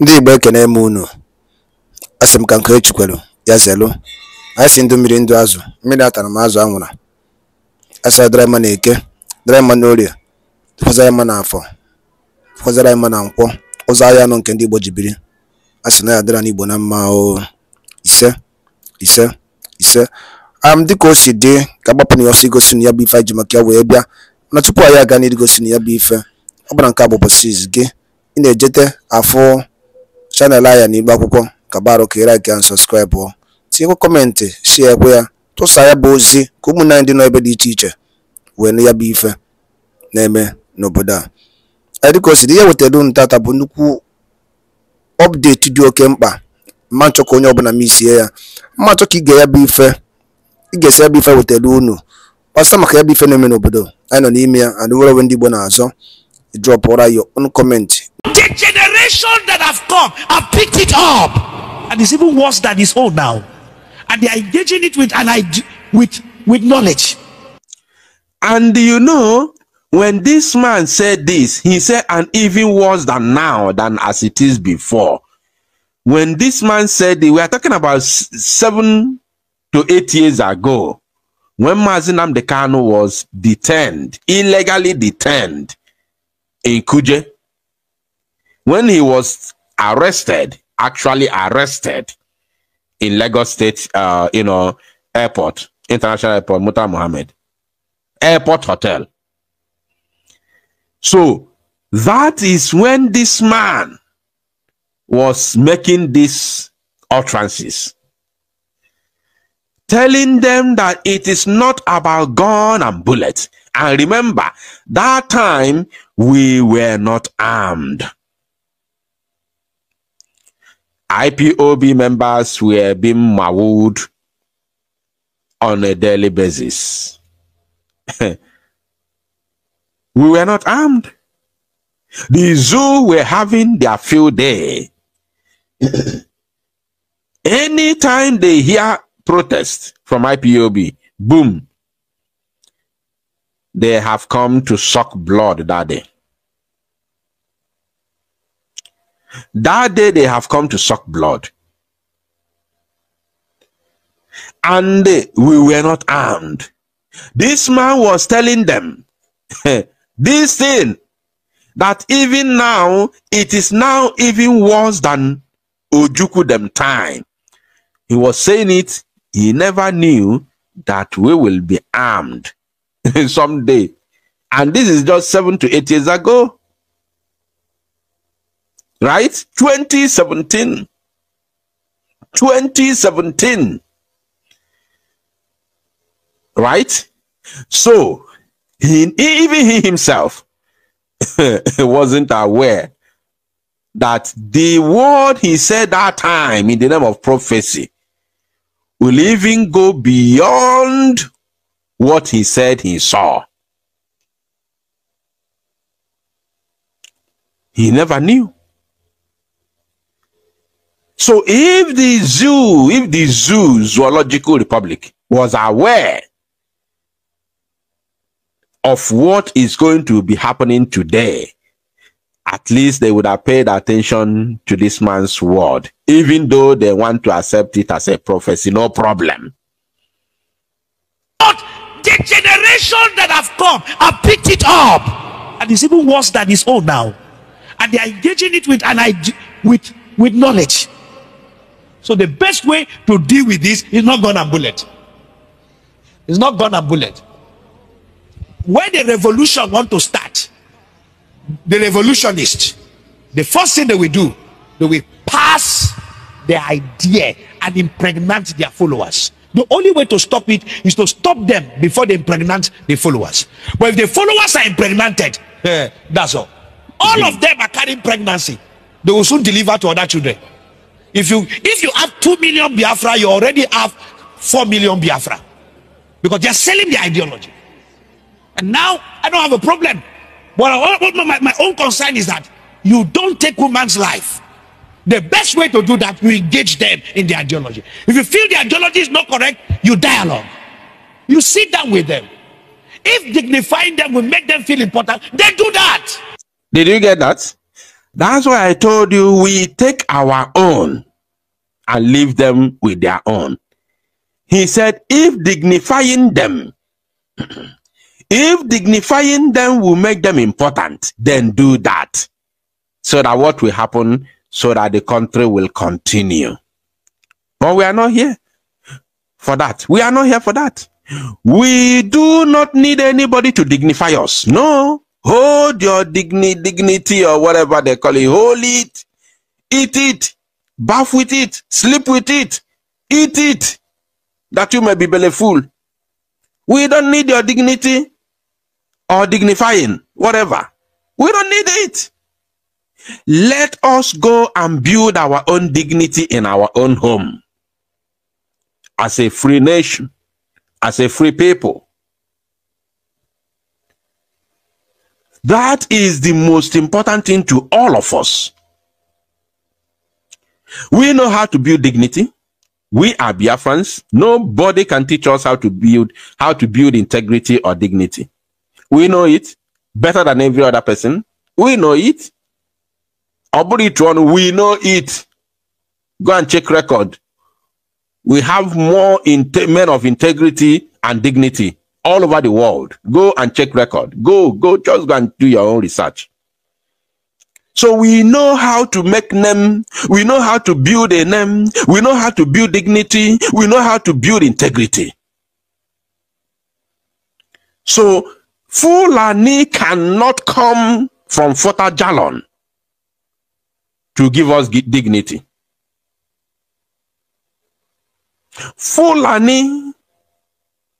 Ndị Igbo ekene m unu, asị m ka nke kwelu ya zelu anyị si ndụ mmiri ndụ azụ, mmiri atara m azụ anwụra, a sara dara mma n'eke, dara mma n'orie, tụkwasara mma n'afọ, tụkwasara mma na nkwọ, ụzọ ahịa nọ nke ndị Igbo ji biri, a na ya n'Igbo na mma o ise ise ise am dịka o si dị ka agbapụ na ya ọsọ igosi na ya bụ ife anyị ji maka ya wee bịa na tupu anyị aga gosi na ya bụ ife ọ bụla nke a bụ gị ị na-ejete afụ chanel anyị na Akwụkwọ ka barụka ị laikịa sọskraịbụ tinyekwa kọmentị shie ekwe ya tụsa ya bụ ozi ka ụmụnne dị n'ebe dị iche iche wee ya bụ ife na-eme n'obodo a dịka o dị ihe wetara unu tata bụ nnukwu ọpdeti dị oke mkpa mma nchọ ka onye ọbụla m isie ya mma nchọ ka ige ya bụ ife ị ya bụ ife wetara unu kpasa maka ya bụ ife na-eme n'obodo anyị nọ n'ime ya and nwere onwe ndị Igbo na-azọ ụra ya ọnụ kọmentị generations that have come have picked it up and it's even worse than his own now and they are engaging it with and i with with knowledge and you know when this man said this he said and even worse than now than as it is before when this man said we are talking about seven to eight years ago when Mazinam Dekano was detained, illegally detained in Kuje, when he was arrested, actually arrested in Lagos State, uh, you know, airport, international airport, Muta Mohammed, airport hotel. So that is when this man was making these utterances, telling them that it is not about gun and bullets. And remember, that time we were not armed. IPOB members were being mauled on a daily basis. we were not armed. The zoo were having their field day. Anytime they hear protest from IPOB, boom, they have come to suck blood that day. That day they have come to suck blood. And we were not armed. This man was telling them this thing that even now it is now even worse than Ojuku them time. He was saying it, he never knew that we will be armed someday. And this is just seven to eight years ago right? 2017. 2017. Right? So, he, even he himself wasn't aware that the word he said that time in the name of prophecy will even go beyond what he said he saw. He never knew. So if the zoo, if the zoo zoological republic was aware of what is going to be happening today, at least they would have paid attention to this man's word, even though they want to accept it as a prophecy, no problem. But the generation that have come have picked it up, and it's even worse than his own now, and they are engaging it with an with with knowledge. So the best way to deal with this is not gun and bullet. It's not gun and bullet. When the revolution want to start, the revolutionist, the first thing they will do, they will pass the idea and impregnate their followers. The only way to stop it is to stop them before they impregnate the followers. But if the followers are impregnated, eh, that's all. All mm-hmm. of them are carrying pregnancy. They will soon deliver to other children. if you if you have two million biafra you already have four million biafra because they are selling their ideology and now i don't have a problem but my, my own concern is that you don't take woman's life the best way to do that you engage them in the ideology if you feel the ideology is not correct you dialogue you sit down with them if dignifying them will make them feel important they do that did you get that That's why I told you we take our own and leave them with their own. He said, if dignifying them, if dignifying them will make them important, then do that. So that what will happen, so that the country will continue. But we are not here for that. We are not here for that. We do not need anybody to dignify us. No. Hold your dignity or whatever they call it. Hold it. Eat it. Bath with it. Sleep with it. Eat it. That you may be belleful. We don't need your dignity or dignifying, whatever. We don't need it. Let us go and build our own dignity in our own home. As a free nation, as a free people, That is the most important thing to all of us. We know how to build dignity. We are Biafrans. Nobody can teach us how to build how to build integrity or dignity. We know it better than every other person. We know it. Oburitron, we know it. Go and check record. We have more men of integrity and dignity all over the world. Go and check record. Go, go, just go and do your own research. So we know how to make name. We know how to build a name. We know how to build dignity. We know how to build integrity. So Fulani cannot come from Fota Jalon to give us dignity. Fulani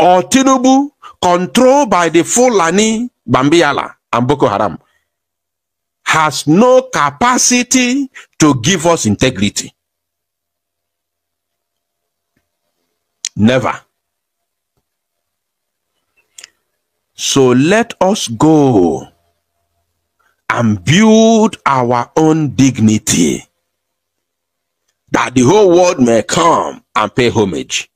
or Tinubu controlled by the Fulani, Bambiala, and Boko Haram has no capacity to give us integrity. Never. So let us go and build our own dignity that the whole world may come and pay homage.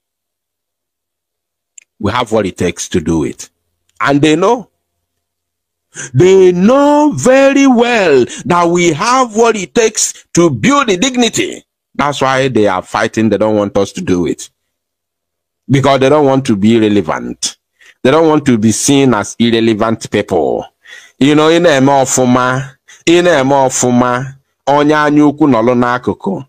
we have what it takes to do it. And they know. They know very well that we have what it takes to build the dignity. That's why they are fighting. They don't want us to do it. Because they don't want to be relevant. They don't want to be seen as irrelevant people. You know, ị fuma, in a na onya ọfụma, onye anya ukwu nọlụ n'akụkụ.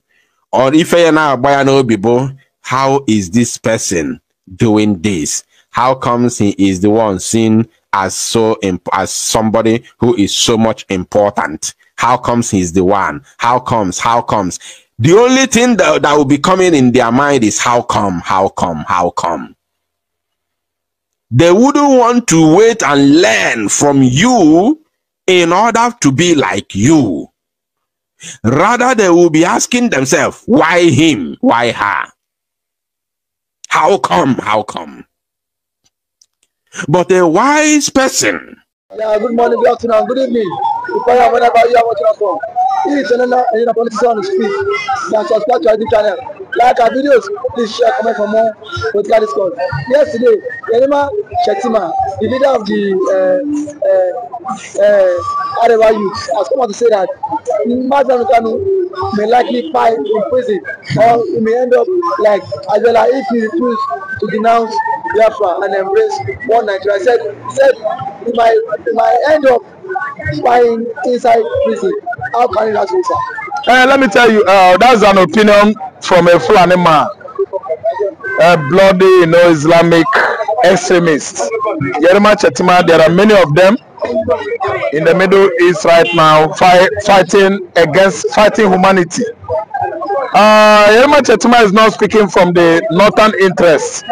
Ife ya na-agba n'obi how is this person doing this? How comes he is the one seen as so as somebody who is so much important? How comes he's the one? How comes? How comes? The only thing that, that will be coming in their mind is how come? How come? How come? They wouldn't want to wait and learn from you in order to be like you. Rather, they will be asking themselves, why him? Why her? How come? How come? But a wise person. Yeah, good morning, good afternoon, good evening. Depending whenever you are watching us from. If you're not on politician, speak. Then subscribe to our YouTube channel. Like our videos, please share, comment for more political discourse. Yesterday, Yerima Shetima, the leader of the uh, uh, uh, Arewa youth, has come out to say that Mazda Nukanu may likely find in prison or he may end up like Abiola if he refuse to denounce Biafra and embrace one Nigeria. He said, he said he might, he might end up spying inside prison. How can it happen, sir? Uh, let me tell you, uh, that's an opinion from a Fulani man, a bloody, you know, Islamic extremist. there are many of them in the Middle East right now fight, fighting against fighting humanity. Uh, Yerima Chetima is not speaking from the northern interests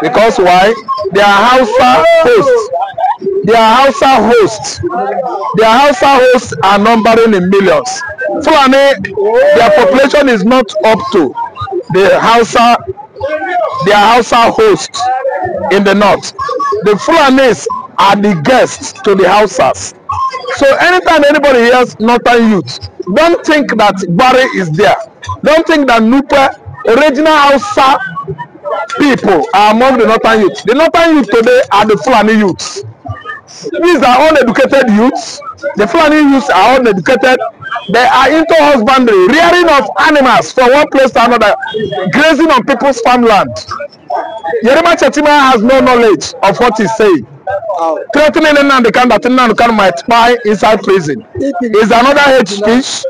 because why? They are Hausa hosts. They are Hausa hosts. Their Hausa hosts are numbering in millions. Fulani, their population is not up to the Hausa, their Hausa hosts in the north. The Fulanis are the guests to the houses, So anytime anybody hears northern youth, don't think that Barry is there. Don't think that Nupe, original Hausa people are among the northern youth. The northern youth today are the Fulani youths. These are uneducated youths. The Fulani youths are uneducated. They are into husbandry, rearing of animals from one place to another, grazing on people's farmland. Yerima Chetima has no knowledge of what he's saying. Oh. Threatening Nnamdi Kanu that Nnamdi Kanu might spy inside prison is another hate speech.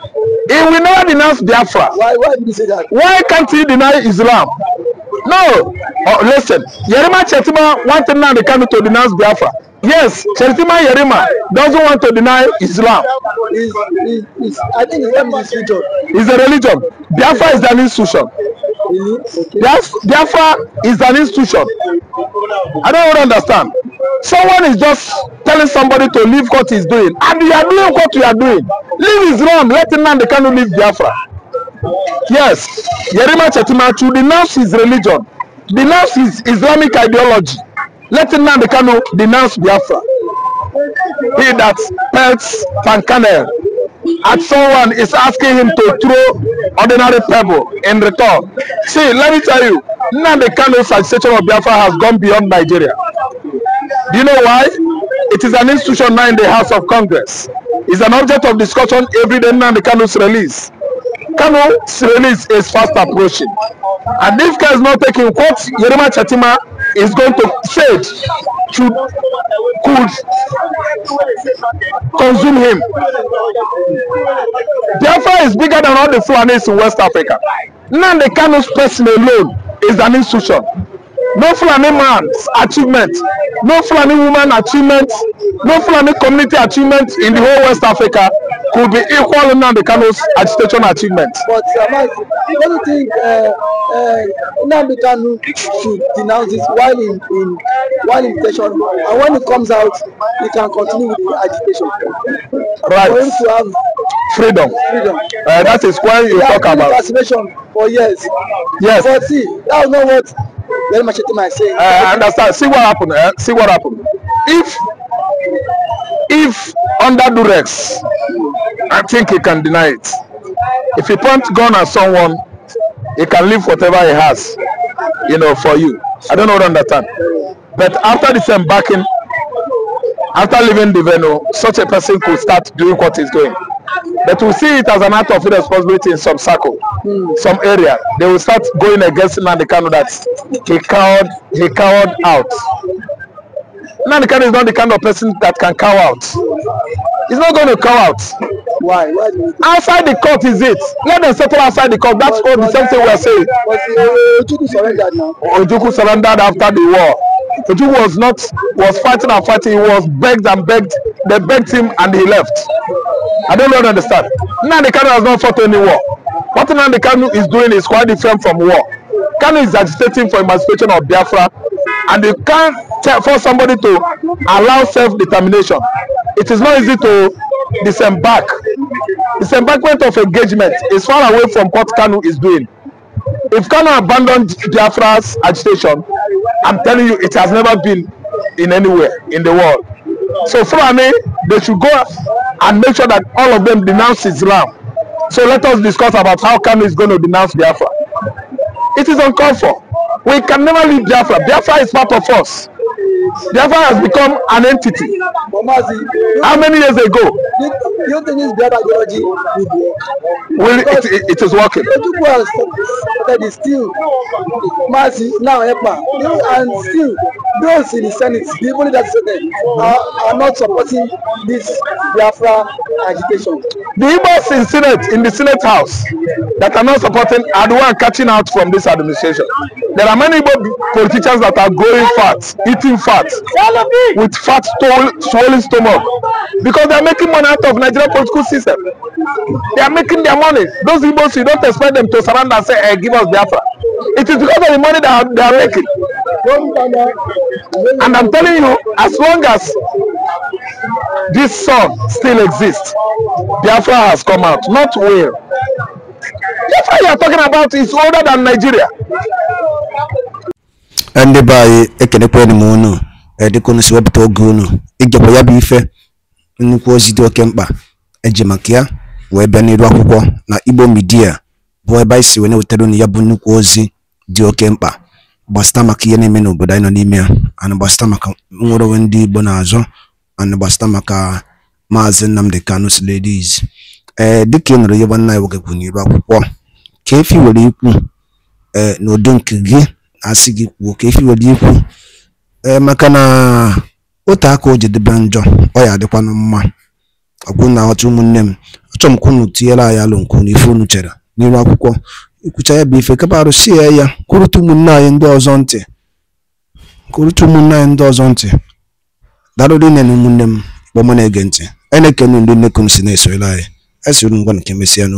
He will never denounce Biafra. Why, why did you say that? Why can't he deny Islam? No. Oh, listen, Yerima Chetima wanted the Kanu to denounce Biafra. Yes, Chetima Yerima doesn't want to deny Islam. Is, is, is, I think Islam is a religion. It's a religion. Biafra is an institution. Really? Biafra is an institution. I don't understand someone is just telling somebody to leave what he's doing and you are doing what you are doing leave is wrong let him nnamdi kanu leave biafra yes yerima chetimachu denounce his religion denounce his islamic ideology let him nnamdi kanu denounce biafra he that pelts pankanel at someone is asking him to throw ordinary pebble in return see let me tell you nnamdi kanu's agitation of biafra has gone beyond nigeria Do you know why? It is an institution now in the House of Congress. It's an object of discussion every day now the Kanu's release. Kanu's release is fast approaching. And if Kanu is not taking what Yerima Chatima is going to say should could consume him. Biafra is bigger than all the Fulanis in West Africa. Now the Kanu's person alone is an institution no Fulani man's achievement, no Fulani woman achievement, no Fulani community achievement in the whole West Africa could be equal to Nnamdi Kano's agitation achievement. But Samad, uh, what do you think uh, uh, Nnamdi Kanu should denounce this while in, in while in session and when it comes out he can continue with the agitation? Right. For him to have freedom. freedom. Uh, that is why you talk about. Incarceration for years. Yes. But see, that is not what Very much thing I say. I understand. See what happened. Eh? See what happened. If if under Durex, I think he can deny it. If he point gun at someone, he can leave whatever he has, you know, for you. I don't know what understand. But after disembarking, after leaving the venue, such a person could start doing what he's doing. But we see it as an act of irresponsibility in some circle, mm. some area. They will start going against Nandi that he cowered, he cowered out. Nandi is not the kind of person that can cow out. He's not going to cow out. Why? Why outside the court is it? Let them settle outside the court. That's all the same thing we are saying. But Ojuku surrendered after the war. Eju was not was fighting and fighting. He was begged and begged. They begged him and he left. I don't really understand. Nnamdi Kanu has not fought any war. What Nnamdi Kanu is doing is quite different from war. Kanu is agitating for emancipation of Biafra, and you can't force somebody to allow self-determination. It is not easy to disembark. Disembarkment of engagement is far away from what Kanu is doing if Ghana abandoned Biafra's agitation, I'm telling you, it has never been in anywhere in the world. So for me, they should go and make sure that all of them denounce Islam. So let us discuss about how Kano is going to denounce Biafra. It is uncalled for. We can never leave Biafra. Biafra is part of us. Biafra has become an entity. How many years ago? using this Biafra ideology would work. Will it, it, is working. Ojukwu has said still mass now help am and still those in the senate the people that say that are, are not supporting this biafra agitation. the igbos in senate in the senate house that are not supporting are the one catching out from this administration there are many igbo politicians that are growing fat eating fat with fat swollen stomach because they are making money out of nigeria political system they are making their money those igbos you don't expect them to surrender and say hey, give us biafra it is because of the money that they are making And I'm telling you, as long as this sun still exists, Biafra has come out, not will. Biafra you are talking about is older than Nigeria. ndị be a ekenekwa m unu edịkunu si wepụta oge unu igekwa ya bụ ife nnukwu ozi dị oke mkpa eji ya wee bịa akwụkwọ na Igbo Media bụ ebe anyị si wee na-wetara unu ya bụ nnukwu ozi dị oke mkpa gbasịta maka ihe na-eme n'obodo anyị nọ n'ime ya ana gbasịta maka nwere onwe ndị Igbo na-azọ ana maka maazị Nnamdi Kanu Ladies ee eh, dịka ị nụrụ ihe nwanne anyị nwoke kwuru n'iru akwụkwọ ka efi were ikwu ee eh, n'ụdị nke gị asị gị kwuo ka efi were ikwu ee eh, maka na otu aka o jedebe njọ ọ ya adịkwanụ mma ọkwụ na aghọta ụmụnne m achọrọ m ka unu tinyere anyị alụ nke unu ife unu chere n'iru akwụkwọ ikwucha ya bụ ife kapa arụsi ya kwurụta ụmụnne anyị ndị ọzọ ntị kwurụta anyị ndị ọzọ ntị darụrụ nne na ụmụnne m kpọmọ na-ege ntị a na-ekene ndị si na-esorela anyị esoro ngwa nke mesịa